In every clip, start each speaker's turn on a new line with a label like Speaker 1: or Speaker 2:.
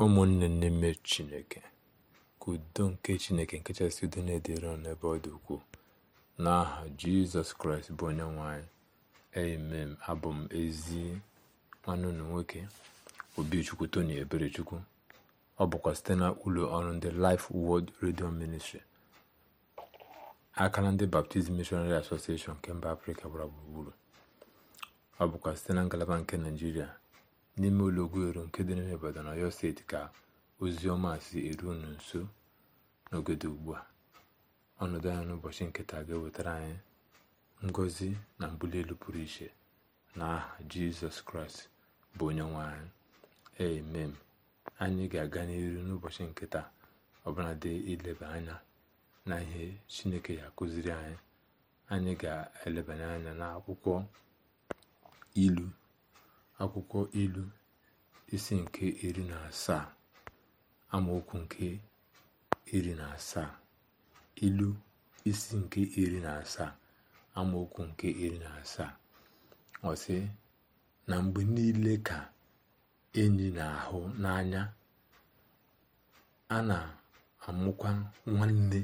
Speaker 1: ụmụnne n'ime chineke ka udo nke chineke nke kachasị udo na-edere ọnụ ebe ọ dị ukwuu n'aha jizọs kraịst bụ onye nwanyị anyị abụ m ezi nwanne unu nwoke obichukwu tony eberechukwu ọ bụkwa site na ụlọ ọrụ ndị Life redio ministri aka akara ndị baptizim Missionary Association nke mba Afrịka gbara gburugburu ọ bụkwa site na ngalaba nke naijiria n'ime ụlọgwuelu nke dị n'ime na Ọyọ steeti ka ozi ọma si eru unu nso n'ogodo ugbu a ọnọdụ anya n'ụbọchị nketa ga-ewetara anyị ngọzi na mbuli elu pụrụ iche na aha jizọs kraịst bụ onye nwe anyị emem anyị ga-aga n'iru n'ụbọchị nketa ọbụla dị ileba anya na ihe chineke ya akụziri anyị anyị ga-elebanye anya n'akwụkwọ ilu akwụkwọ ilu isi nke iri na asaa amaokwu nke iri na asaa ilu isi nke iri na asaa amaokwu nke iri na asaa ọ na mgbe niile ka enyi na-ahụ n'anya a na-amụkwa nwanne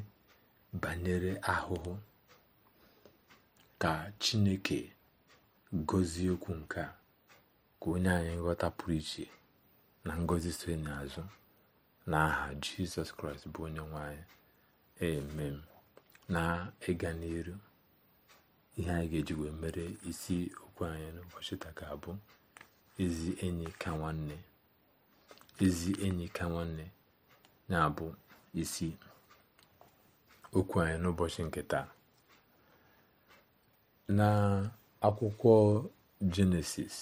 Speaker 1: banyere ahụhụ ka Chineke gọzie okwu nke a ka onye anyị nghọta pụrụ iche na ngọzi so n'azụ na aha jizọs kraịst bụ onye nwe anyị emem na ịga n'iru ihe anyị ga-eji mere isi okwu anyị n'ụbọchị taa bụ abụ ezi enyi ka nwanne ezi enyi ka nwanne na-abụ isi okwu anyị n'ụbọchị nke taa na akwụkwọ jenesis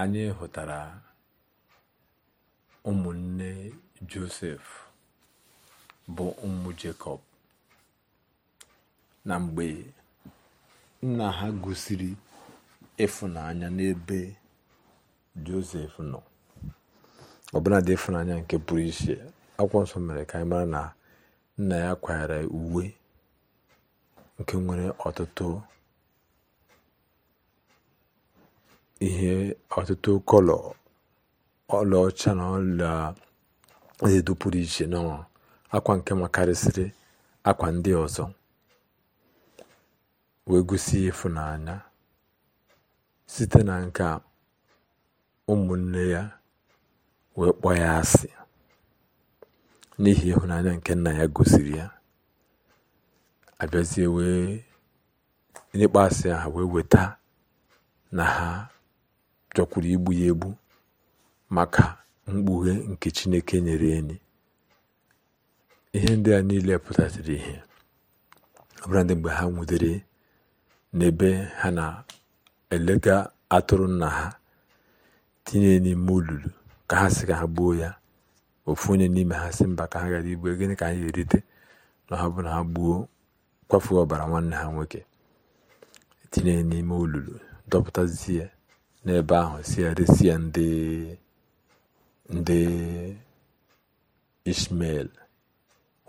Speaker 1: anyị hụtara ụmụnne josef bụ ụmụ jekọb na mgbe nna ha gosiri ịfụnanya n'ebe josef nọ dị ịfụnanya nke pụrụ iche akwụkwọ nsọ mere ka anyị mara na nna ya kwanyere uwe nke nwere ọtụtụ ihe ọtụtụ kọlọ ọlaọcha na ọla edo pụrụ iche na akwa nke makarịsịrị akwa ndị ọzọ wee gosi ịfụnanya site na nke ụmụnne ya wee kpọ ya asị n'ihi ịhụnanya nke nna ya gosiri ya abịazie wee asị ha wee weta na ha chọkwuru igbu ya egbu maka mkpughe nke chineke nyere enyi ihe ndị a niile pụtatara ihe ọbụla ndị mgbe ha nwudere n'ebe ha na-elega atụrụ nna ha tinye n'ime olulu ka ha si ka ha gbuo ya ofu onye n'ime ha si mba ka ha gara igbu gịnị ka anyị erite na ha bụ na ha gbuo kwafuo ọbara nwanne ha nwoke tinye n'ime olulu dọpụtazie n'ebe ahụ si eresịa ndị ndị ishmel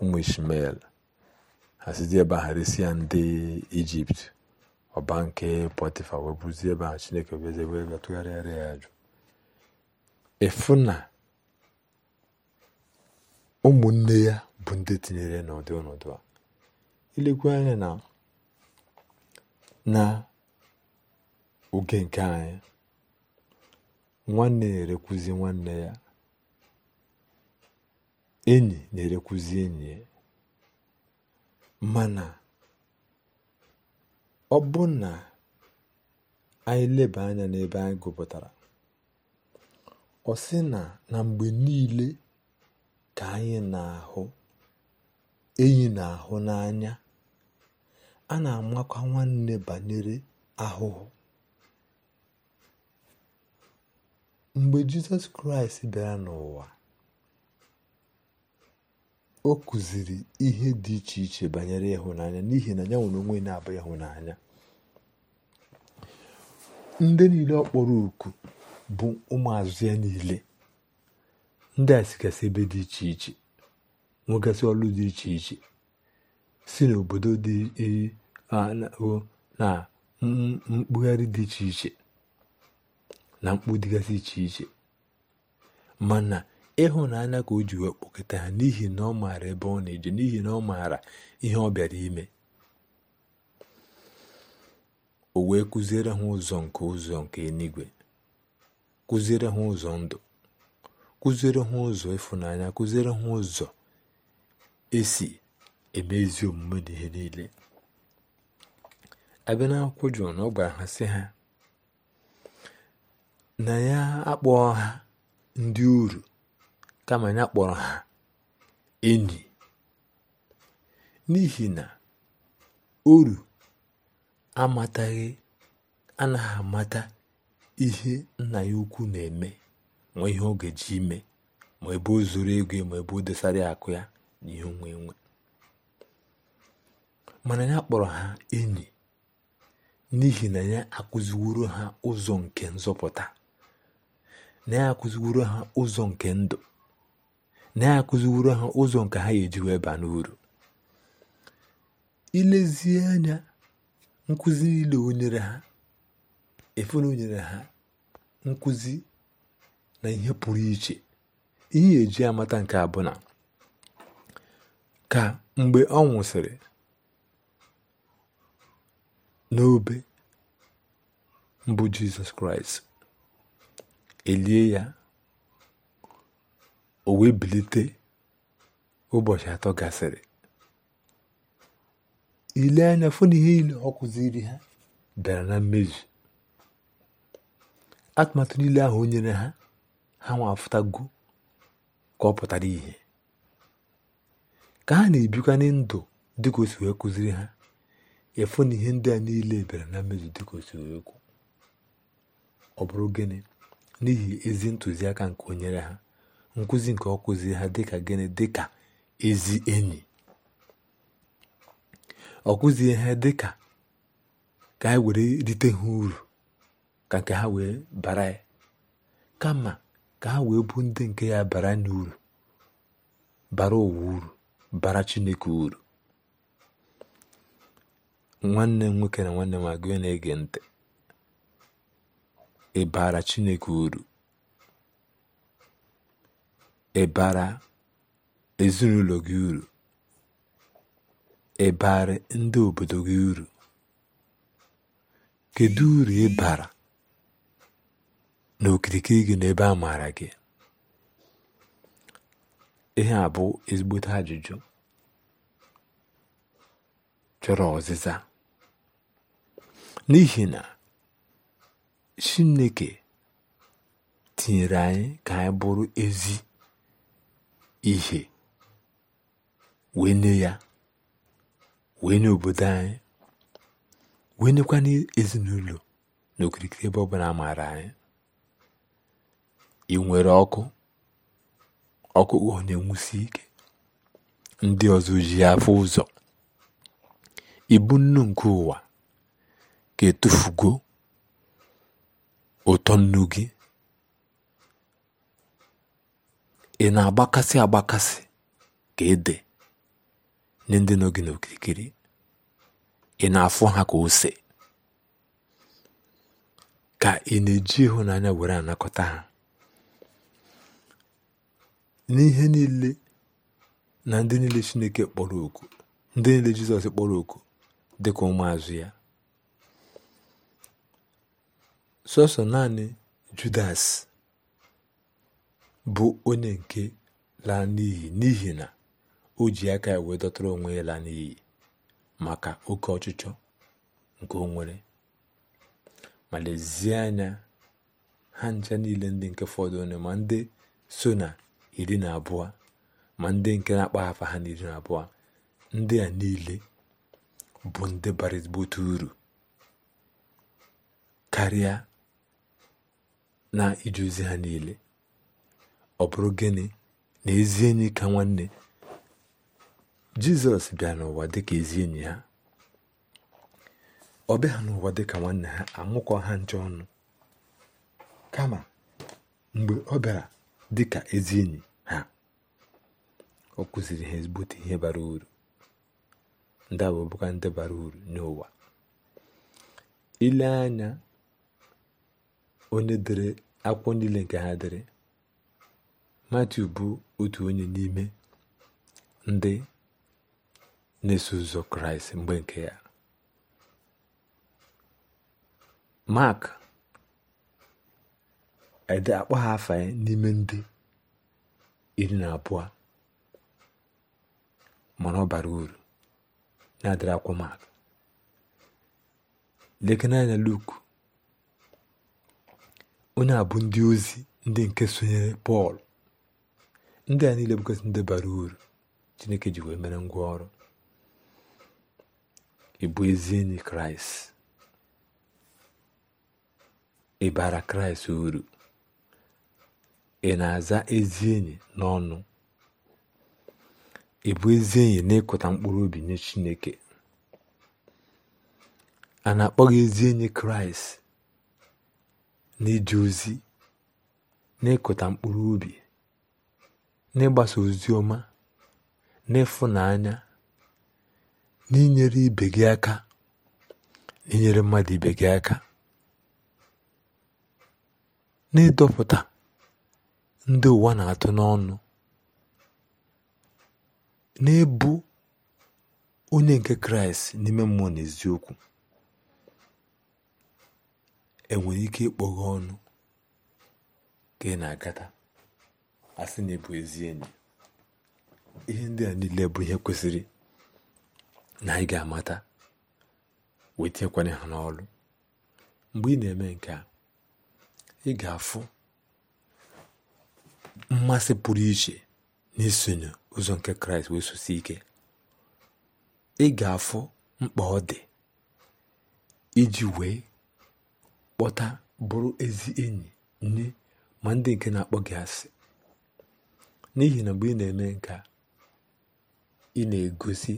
Speaker 1: ụmụ ishmael ha sizi ebe ahụ ya ndị ijipt ọba nke pọtịfa wee bụzie ebe ahụ chineke beze wee tụgharịara ya ajụ efu na ụmụnne ya bụ ndị tinyere n'ụdị ọnọdụ a ilekwa anya na na oge nke anyị nwanne na-erekwuzi nwanne ya enyi na-erekwuzi enyi ya mana ọ bụ na anyị leba anya n'ebe anyị gụpụtara ọ sị na na mgbe niile ka anyị na-ahụ enyi na-ahụ n'anya a na-amakwa nwanne banyere ahụhụ mgbe jizọs kraịst bịara n'ụwa o kụziri ihe dị iche iche banyere ịhụnanya n'ihi na ya nwere onwe na-abụ ịhụnanya ndị niile ọ kpọrọ oku bụ ụmụazụ ya niile ndị a sigasị ebe dị iche iche nwegasị ọlụ dị iche iche si n'obodo dị e, na mkpugharị dị iche iche na mkpu dịgasị iche iche mana ịhụnanya ka o ji wee ha n'ihi na ọ maara ebe ọ na-eje n'ihi na ọ maara ihe ọ bịara ime o wee kụziere ha ụzọ nke ụzọ nke enigwe, kụziere ha ụzọ ndụ kụziere ha ụzọ ịfụnanya kụziere ha ụzọ esi eme ezi omume n'ihe niile abịa jụ na ọ gwara ha sị ha na ya akpọọ ha ndị uru kama ya kpọrọ ha enyi n'ihi na uru amataghị anaghị amata ihe nna ya ukwu na-eme ma ihe ọ ga-eji ime ma ebe o zuru ego ma ebe o dosara akụ ya na ihe onwe nwe mana ya kpọrọ ha enyi n'ihi na ya akụziworo ha ụzọ nke nzọpụta na-akụziworo ha ụzọ nke ndụ na-akụziworo ha ụzọ nke ha ga-eji wee baa n'uru ilezie anya nkụzi niile onyere ha efere ha nkụzi na ihe pụrụ iche ihe eji amata nke abụna ka mgbe ọ nwụsịrị n'obe mbụ Jizọs Kraịst elie ya o wee bilite ụbọchị atọ gasịrị ile anya na ihe niile ọ kụziri ha bịara na mmezu atụmatụ niile ahụ onyere nyere ha ha nwafụtago ka ọ pụtara ihe ka ha na-ebikwa ndụ dịka o wee kụziri ha efu na ihe ndị a niile bịara na mmezu dịka o wee kwu ọ bụrụ gịnị n'ihi ezi ntụziaka nke onyere nyere ha nkụzi nke ọ kụziri ha dịka gịnị dịka ezi enyi ọ kụzie ha dịka ka anyị were rite ha uru ka nke ha wee bara ya kama ka ha wee bụ ndị nke ya bara n'uru bara ụwa uru bara chineke uru nwanne m nwoke na nwanne m agụ na-ege ntị ị Chineke uru ị bara ezinụlọ gị uru ị bara ndị obodo gị uru kedu uru ị na n'okirikiri gị n'ebe a maara gị ihe a bụ ezigbote ajụjụ chọrọ ọzịza n'ihi na chineke tinyere anyị ka anyị bụrụ ezi ihe wee nye ya wee nye obodo anyị wee nyekwa n'ezinụlọ n'okirikiri ebe ọbụla maara anyị ị nwere ọkụ ọkụ na enwusi ike ndị ọzọ ji afọ ụzọ ibu nnu nke ụwa ka etufugo ụtọ nnu gị ị na-agbakasị agbakasị ka ede nye ndị nọ gị n'okirikiri ị na-afụ ha ka ose ka ị na-eji ịhụnanya were anakọta ha n'ihe niile na ndị niile Chineke kpọrọ oku ndị niile Jizọs kpọrọ oku dị dịka ụmụazụ ya sọsọ naanị judas bụ onye nke laa n'iyi n'ihi na o ji aka ya wee dọtara onwe ya laa maka oke ọchịchọ nke o nwere ma lezie anya ha ncha niile ndị nke fọdụ onye ma ndị so na iri na abụọ ma ndị nke na-akpaghafa ha na iri na abụọ ndị a niile bụ ndị bara ezigbote uru karịa na ije ozi ha niile ọ bụrụ gịnị na ezi enyi ka nwanne jizọs bịa n'ụwa dịka ezi enyi ha ọ bịa n'ụwa dịka nwanne ha anwụkọ ha nche ọnụ kama mgbe ọ bịara dịka ezi enyi ha ọ kụziri ha ezigbote ihe bara uru ndị abụbụka ndị bara uru n'ụwa ile anya onye dere akwụkwọ niile nke ha dere matiu bụ otu onye n'ime ndị na-eso ụzọ kraịst mgbe nke ya mak ede akpọ ha afa n'ime ndị iri na abụọ mana ọ bara uru na-adịrị akwụkwọ mak lekene anya onye a bụ ndị ozi ndị nke sonyere pọl ndị a niile bụgasị ndị bara uru chineke ji wee mere ngwa ọrụ ịbụ ezi enyi kraịst ịbara bara kraịst uru ị na-aza ezi enyi n'ọnụ ị bụ ezi enyi n'ịkụta mkpụrụ obi nye chineke a na akpọghị ezi enyi kraịst n'ije ozi n'ịkụta mkpụrụ obi n'ịgbasa ozi ọma n'ịfụnanya n'inyere ibe gị aka inyere mmadụ ibe gị aka n'ịdọpụta ndị ụwa na-atụ n'ọnụ n'ebu onye nke kraịst n'ime mmụọ na eziokwu enwere ike ịkpọghe ọnụ ka ị na-agata asị na ịbụ ezi enyi ihe ndị a niile bụ ihe kwesịrị na anyị ga-amata wee tinyekwanye ha n'ọlụ mgbe ị na-eme nke a ị ga-afụ mmasị pụrụ iche n'isonye ụzọ nke kraịst wee sosi ike ị ga-afụ mkpa ọ dị iji wee kpọta bụrụ ezi enyi nye ma ndị nke na-akpọ gị asị n'ihi na mgbe ị na-eme nke ị na-egosi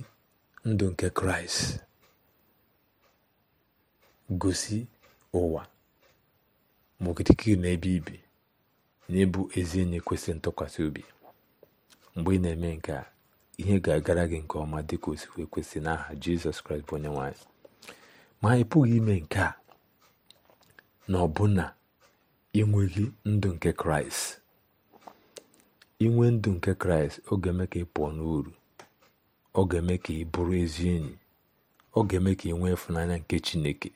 Speaker 1: ndụ nke kraịst gosi ụwa ma okirikiri na ebe ibi na ịbụ ezi enyi kwesịrị ntụkwasị obi mgbe ị na-eme nke a ihe ga-agara gị nke ọma dịka osikwe kwesị n'aha jizọs kraịst bụ onye nwanyị ma ị pụghị ime nke a na ọbụna inweghị ndụ nke kraịst inwe ndụ nke kraịst ọ ga-eme ka ị pụọ n'uru ọ ga-eme ka ị bụrụ ezi enyi ọ ga-eme ka ị nwee ịfụnanya nke chineke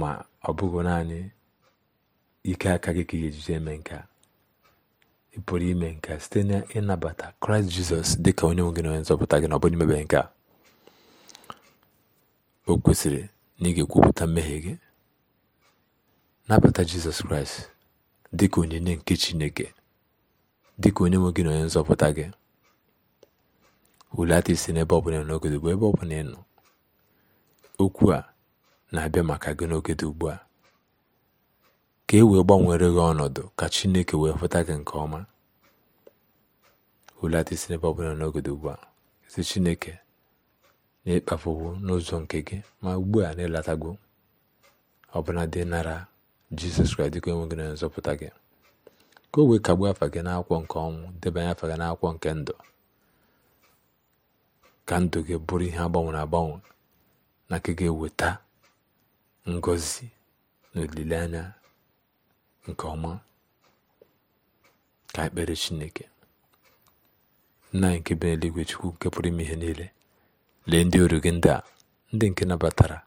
Speaker 1: ma ọ bụghị naanị ike aka gị ka ị ga eme nke ị pụrụ ime nke site na ịnabata kraịst jizọs dị ka onye nwe gị na onye nzọpụta gị na ọ bụrụ imebe nke o kwesịrị na ị ga-ekwupụta mmehie gị nabata jizọs kraịst dị onyinye nke chineke dịka ka onye nwe gị na onye nzọpụta gị hulata isi n'ebe ọbụla n'oge ugbu ebe ọbụla ị nọ okwu a na-abịa maka gị n'oge dị a ka e wee gbanwere gị ọnọdụ ka chineke wee fụta gị nke ọma hulata isi n'ebe ọbụla n'oge dị ugbu a si chineke na n'ụzọ nke gị ma ugbu a na ịlatago ọbụna dị nara jizọs kraịst dịka enweghị na nzọpụta gị ka o wee kagbuo afa gị n'akwụkwọ nke ọnwụ debanye afa gị n'akwụkwọ nke ndụ ka ndụ gị bụrụ ihe agbanwere agbanwe na nke ga-eweta ngọzi na olileanya nke ọma ka ekpere chineke nna anyị nke bi n'eluigwe chukwu nke pụrụ ime ihe niile lee ndị ọrụ gị ndị a ndị nke nabatara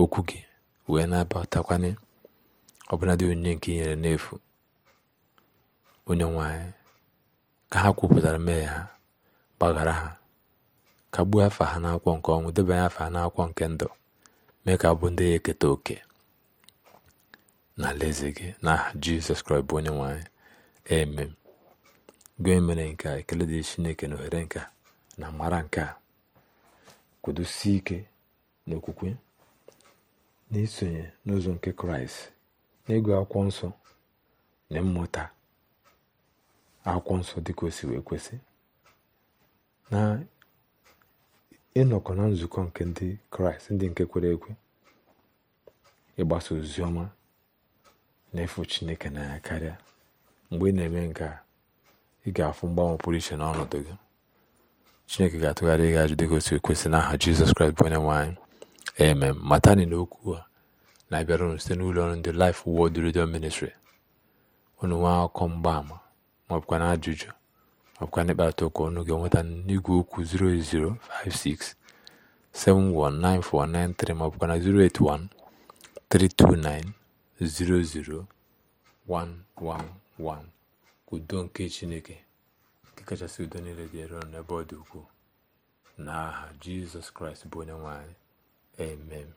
Speaker 1: okwu gị wee nabatakwana ọbụladị onyinye nke i nyere n'efu onye nwanyị ka ha kwupụtara mmehie ha gbaghara ha kagbuo afa ha n'akwụkwọ nke ọnwụ debanye afa ha n'akwụkwọ nke ndụ mee ka abụ ndị ya eketa oke na alaeze gị aha jizọs kraịst bụ onye nwanyị eme gị mere nke a ekele dị chineke na ohere nke na mara nke a kwudosie ike n'okwukwe na isonye n'ụzọ nke kraịst ịgụ akwụkwọ nsọ na mmụta akwụkwọ nsọ dịka o si wee kwesị na ịnọkọ na nzukọ nke ndị kraịst ndị nke kwere ekwe ịgbasa ozi ọma na ịfụ chineke na ya karịa mgbe ị na-eme nke a ị ga-afụ mgbanwe pụrụ iche n'ọnọdụ gị chineke ga-atụgharị gị ajụ dịka otu aha n'aha jizọs kraịst bụ onye nwaanyị eme matani na okwu a na-abịara unu site n'ụlọ ọrụ ndị Life Word Redio Ministry unu nwee akụkọ mgbaama maọbụkwa na ajụjụ maọbụkwa na ịkparịta ụka ọnụ ga-enweta n'igwe okwu 08056719493 maọbụkwa na 08132900111 udo nke chineke kachasị udo niile dị ero n'ebe ọ dị ukwuu n'aha jizọs kraịst bụ onye nwanyị. emem.